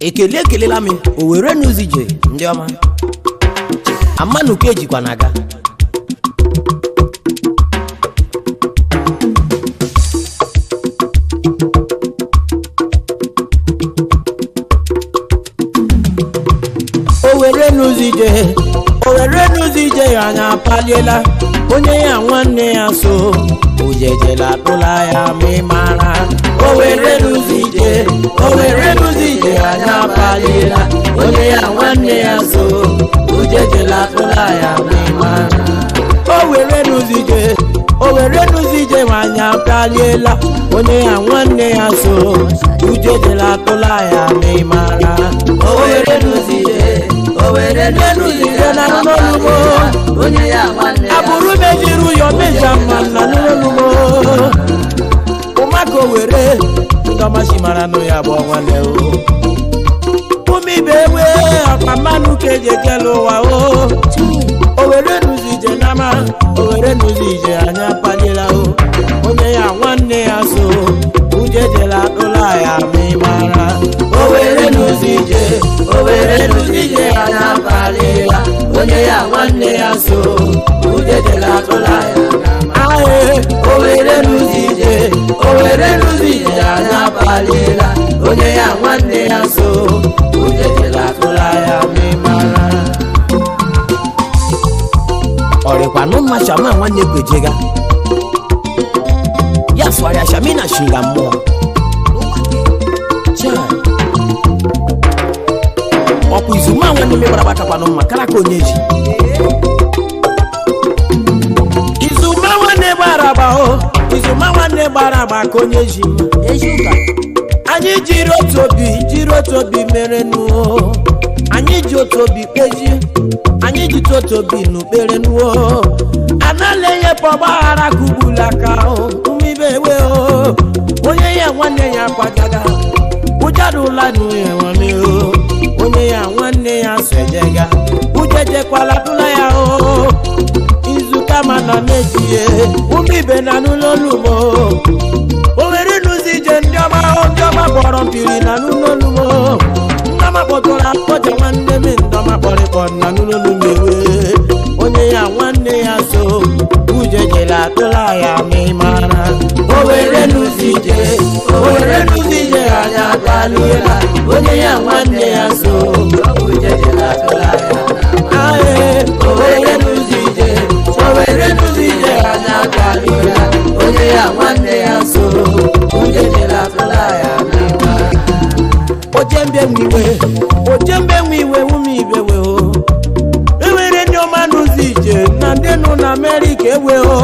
ekele ekelela m o were n'ụzije ndị ọma amanuke jikwa na aga o were n'ụzije ọ were ya anya apaliela onye ya nwanne ya so ojejela tụla ya ma ị mara o were n'ụzije so ujejela akpụla ya n'ịmara o were nụzije o were nụzije nwanyị abịaliela onye ya nwanne ya so ujejela akpụla ya n'ịmara o were nụzije o were nụzije na n'olumo abụrụ mejiri ụyọ meja mma na n'olumo ụmaka o were ndọmachimara nụ ya bụ ọnwa na ewu ibe ewe ọkpa mmanụ ka eji ekele ụwa o owere nụzi ije n'ama owere nụzi ije anya akpajela o onye ya nwanne ya so uje jela ụlọ ya ma mara owere nụzi ije owere nụzi ije anyị akpalila onye ya nwanne ya so uje jela ụlọ ya owere nụzi ije owere nụzi ije anyị akpalila onye ya nwanne ya so kwanuma shama nwanne ga ya swara shamina shinga mmụọ ọkwa izuma nwanne megbara gbatakwana mma kara ka onye ji izuma nwanne gbara agba o izuma nwanne gbara ka onye ji mma anyị jiri otu obi jiri otu obi mere nụ anyị ji otu obi kpeji anyị ji otu obi n'ukpere nuo anala enye pa ọgbaghara ka ugbula aka umibe ewe onye ya nwanne ya kwagaga ụjarụla nuhewameo onye ya nwanne ya sojega ujejekwala tụla ya o izuka mana mejiye umibe na n'ụlọ olumo ya nwanne ya so onye jere atụla ya O je nwiwe ojembe nwiwe ume ibewe o ewere e ndị ọma n'ụzọ ije na ndị nụ na amerịka ewe o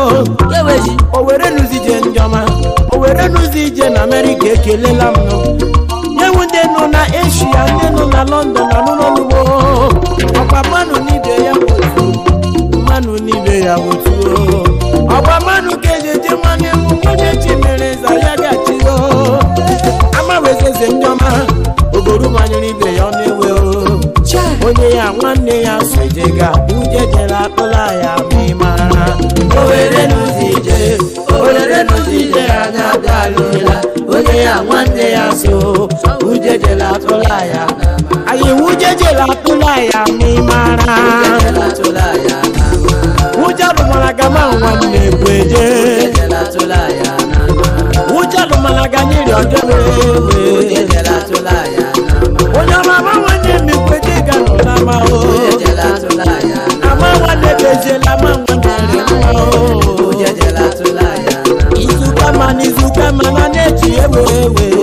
eweji owere n'ụzọ ije ndị ọma owere n'ụzọ ije na amerịka ekelela m nyewu ndị nọ na eshia ndị nọ na lọndọn na n'ụlọugbo ọkwa mmanụ n'ibe ya otu, mmanụ n'ibe ya otu. o Ayewujeje latulaya mimara Wujalumalaga mawanne gweje Wujalumalaga nyiri ojolewe Onyama mawanne mi gweje galulama o Amawanne beje lama wanne rema o Izuka man izuka man anechi ewewe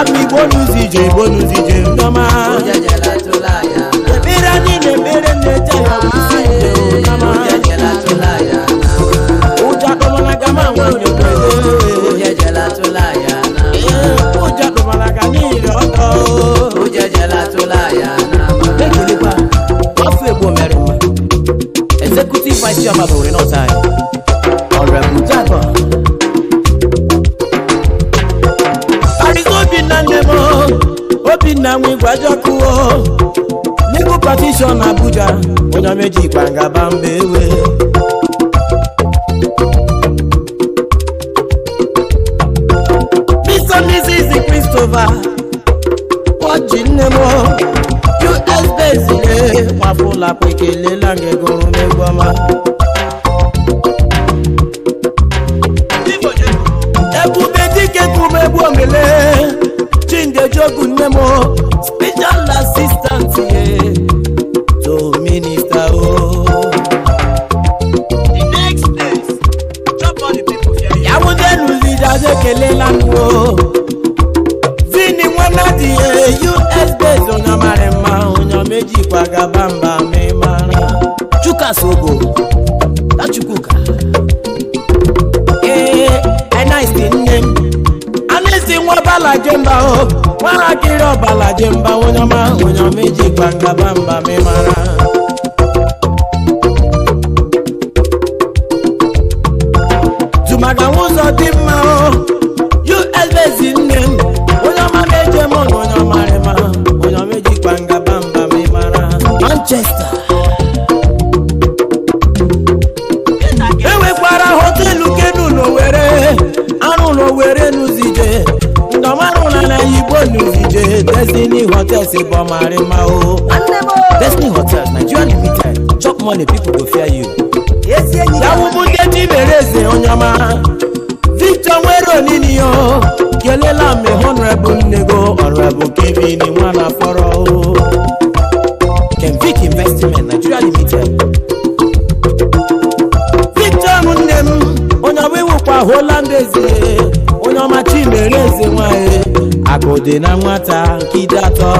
Happy bonusi, joy bonusi, na nwigwajakuo n'ego patishọn abuja onye meji kpangaba mba ewe Mr. Mrs. Christopher kpọji nne m us bezile kwafụlapụ ekelela gị gụrụ n'egwu ọma ebube dike kụmegbu omele bụ nne m special assistant ye to minister o ya wụdenụ liders ekelela m o vini nwana dị us based onye mara mma onye mejikwa gaba mba mịmara chukwukasogo tachukwuka ah. ee eh, eh, eh, nice nne m anụ isi nwa bala jemba o oh nwatakịrị ọbalaje mba onye ọma onye ọma iji gbangaba mba mịmara tụmaka nwa ụzọ dị mma usbz nne m onye ọma meje m na onye ọma rịma onye ọma eji gbangaba mba mịmara Manchester e nwekwara hotelu kenu n'Owerri arụ n'Owerri say oh. destiny hotels say but destiny hotels nigeria limited chop money people go fear you yawubute chibere eze onyeọma victor nwere onini o kelela honorable nnego honorable fọrọ Kenvik investment nigeria limited victor nne m onye ọbụ onye ọma Igbo na nwata nkịta atọ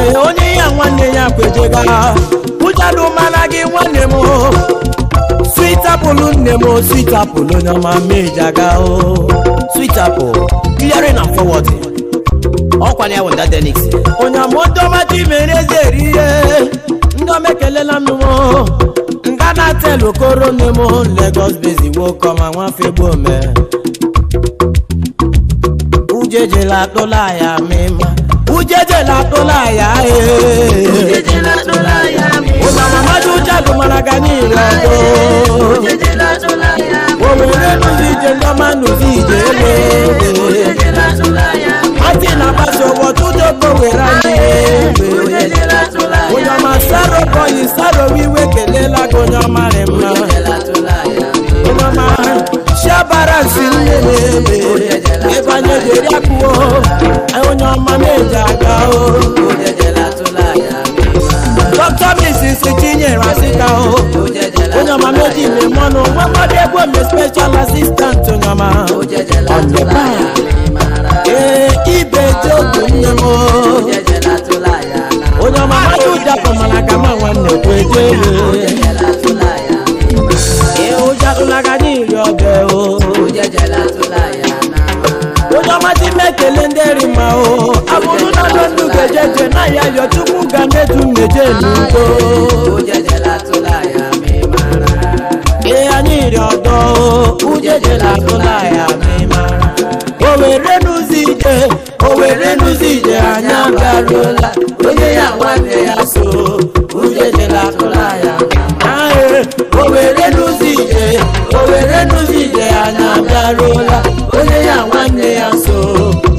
ee onye ya nwanne ya kwejega ụjalụ mara gị nwanne m sweet apple nne m sweet apple onye ọma meji aga o sweet apple clearing and forwarding ọkwa na ya wụ ndadenix onye ama odoma ji mere eze eri ihe ndị ọma ekelela tell okoro name o lagos base come and wan fi gbó mẹ. ujeje la tó láyà mi ma ujeje la tó láyà ee. ujeje la tó láyà mi ma. o mama maju jalu maraga ni ìlọdọ. ujeje la tó láyà mi ma. òun nínú ìje lọ́mọ nù sí ìje lé. ujeje la tó láyà mi ma. àti nàbàṣọwọ́ tó dé kòwé rà ní ebè. tún méje ní tó. Ujẹjẹ la tún láyà mi máa rà. Ìyá ní ìrọ̀dọ̀ o, ujẹjẹ la tún láyà mi máa rà. Òwèrè nu sì jẹ, òwèrè àyà ń gbàdúrà la. Oye yàwó àti àṣọ, ujẹjẹ la tún láyà mi máa rà. Òwèrè nu sì jẹ, òwèrè nu sì jẹ, àyà ń gbàdúrà la. Oye yàwó àti àṣọ.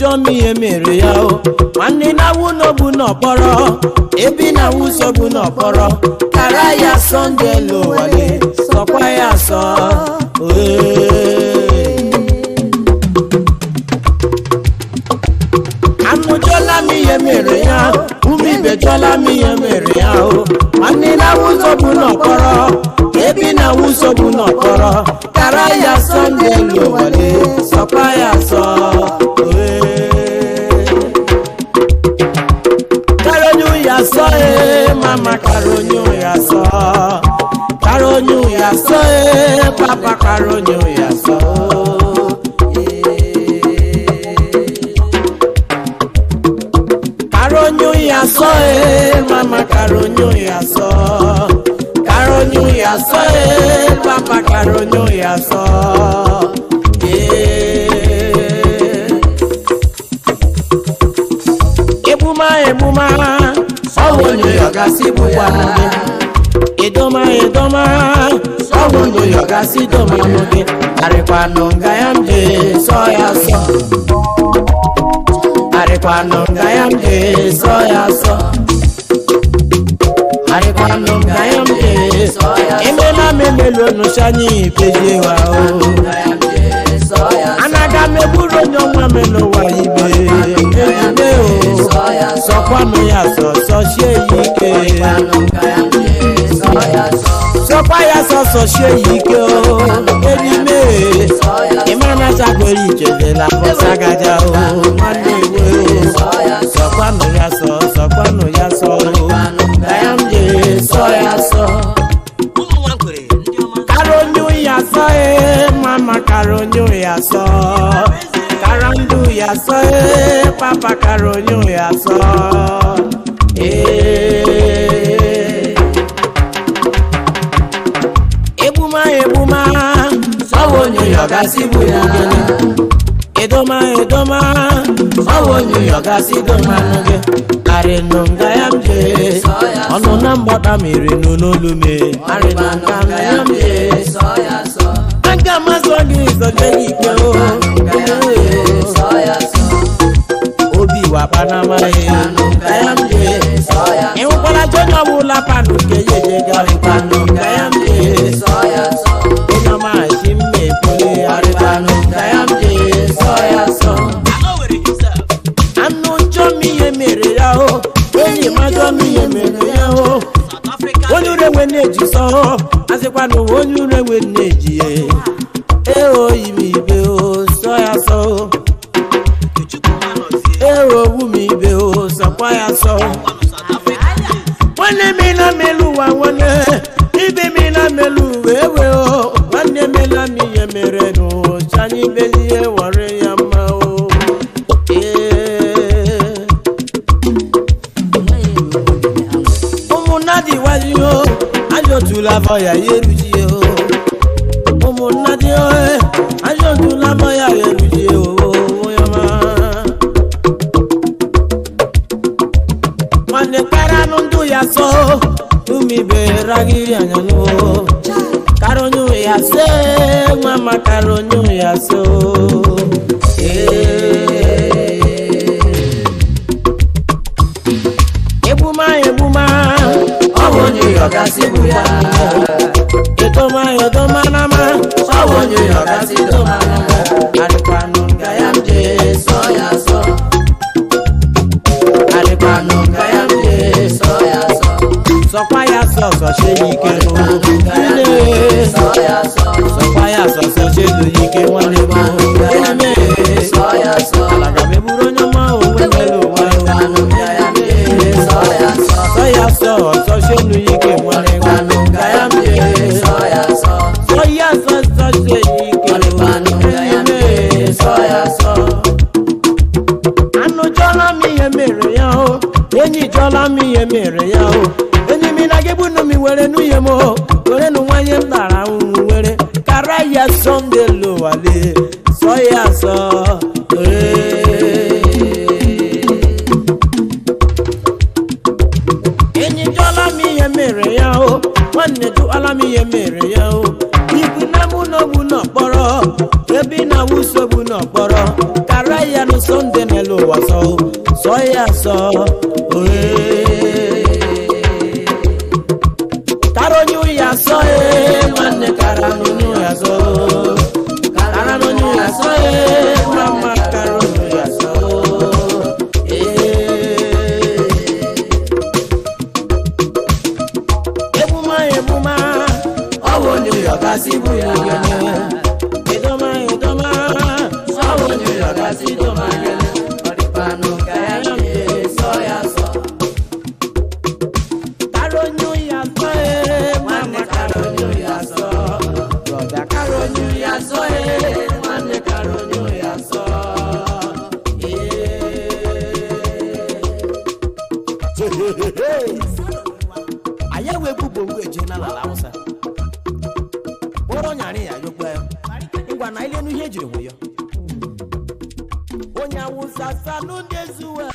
ijomi emere ya o nwanne na bu n'obu n'ọkpọrọ ebi na-awụ bu n'ọkpọrọ kara ya sọ ndị elu ụwa gị sọkwa ya sọ anụjọla m ihe mere ya ume ibejọla m ihe mere ya o nwanne na-awụ sobu n'ọkpọrọ ebi na-awụ sobu n'ọkpọrọ ròyìn òyà sọ ó. Karonyun yasọ ee eh, mama karonyun yasọ karonyun yasọ ee eh, mama karonyun yasọ. Eh. Ebuma ebuma ọwọ́ ni ọ̀gá sí bùbá gasido mamuge arekwano ngayamde soya so arekwano ngayamde soya so arekwano ngayamde soya emena memelo nushanyi pejewa o oh. sọsie yike o edime ịmara chakwere ijele na pọsagaja o nwanne iwe o sọkwanụ ya sọ sọkwanụ ya sọ o na ya m jere sọ ya sọ karonyu ya sọ e mama karonyu ya sọ karandu ya sọ e eh. papa karonyu ọnụ na mgbada mere n'olulume aga mazụ gị zoje gị ikpe obi wakpa na amaghị ịhụkwara ọbụla panụ nke ya ya. ọjọ́ mi yẹ mèrè yẹ o. onúrewe nèjì sọ àsìpàdé onúrewe nèjì yẹ. èèwọ̀ ìmì ìbè o sọ́yà sọ o. èèwọ̀ òwú mi ìbè o sọ̀pọ̀yà sọ o. wọ́n ní mi náà mélòó wà wọ́n ní ibi mi náà mélòó wéwèé o. yìí o ayọ̀tún la fọyà yé lu jí. yọ̀gá sí bùyà. ètò máa yọ̀ tó máa ná máa. sáwọn yóò yọ̀gá sí tó máa ná máa. àlùpànù gàyàmjẹ sọ́yà sọ. àlùpànù gàyàmjẹ sọ́yà sọ. sọpáyà sọ̀sọ̀ ṣe yìí kẹ́nu. àlùpànù gàyàmjẹ sọ́yà sọ. sọpáyà sọ̀sọ̀ ṣe lóyìí kẹ́ wọ́n lè mọ́. wàsọ sọ yà sọ òré. anyị ewebụbo ngwa eje na la awụsa Oro nyari ya yọgba ya ngwa na nu ihe ejiri nwe ya onye awụsa salụ ndị zuwa